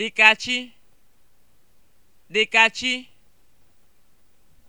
dịka chi